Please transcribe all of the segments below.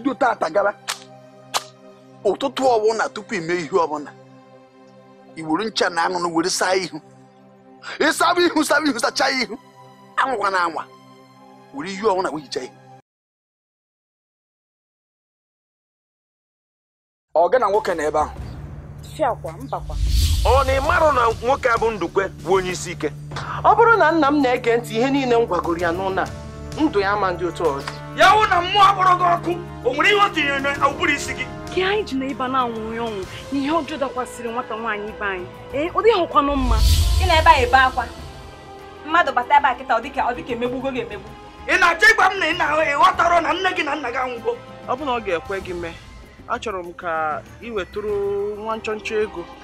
bido tata gawa ụtụtụ ọbụla tupu ime ihe ọbụla iwuru ncha na anụnụ were saa ihu ịsaba e ihu saba ihu sachaa ihu anwa na anwa were ihu ọbụla wee hichaa ihu ọ gị na nwoke na ebe ahụ ọ na ịmarụ na nwoke a bụ ndukwe bụ onye isi ike ọ bụrụ na nna m na-ege ntị ihe niile m gwagoro ya n'ụlọ a ndụ ya ama ndị otu ọzọ ya na mmụọ akpọrọ gị ọkụ o nwere ihe o tinyere na n'ụbụrụ isi gị gị anyị ji na ịba na-anwụghị ọnwụ na ihe ọjọọ dakwasịrị nwata nwaanyị ibe anyị ee eh, ọ dịghị ọkwanụ mma ị na-ebe anyị ebe akwa mmadụ bata ebe a kịta ọ dịka ọ dịka emegbugo gị emegbu ị na-achọ ịgwa m na ị na-ahụ ịghọtara na nne gị na nna gị anwụgo ọ bụ na ọ ga-ekwe gị mee achọrọ m ka ị wetụrụ nwa nchọnchọ ego ka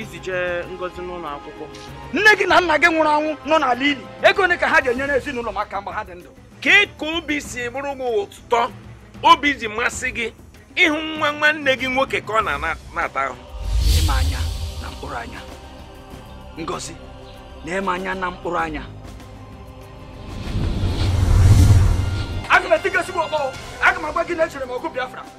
iji jee ngozi n'ụlọ akwụkwọ nne gị na nna gị nwụrụ anwụ nọ n'ala ili ego ole ka ha ji enyere ezinụlọ maka mgbe ha dị ndụ ka ka obi si bụrụ gị ụtọ obi ji masị gị ịhụ nwa nwanne gị nwoke ka ọ na-ata ahụ ịma anya na mkpụrụ anya ngozi na-eme anya na mkpụrụ anya aga m etigosi gị ọkpọ aga m agba gị na echere m ọgụ Biafra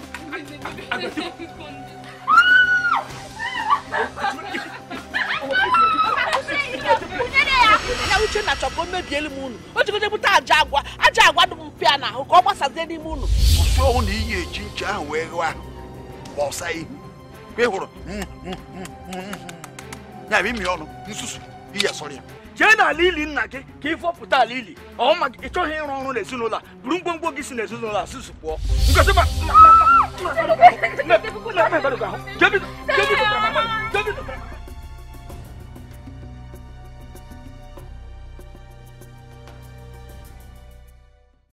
ka o mebiele m unu o jikọjepụta aja agwa aja agwa dị m mpịa n'ahụ ka ọ gbasazie n'ime unu ụsi ọnwụ na iyi eji ncha ahụ wee ghe ahụ ma ọsa ihu ka ị hụrụ ya bụ imi ọnụ nsusu iyi asọrọ ya jee n'ala ili nna gị ka ị fọpụta ala ili ọma gị ịchọghị ịrụ ọrụ n'ezinụlọ a buru ngwongwo gị si n'ezinụlọ a susu pụọ ngosi ma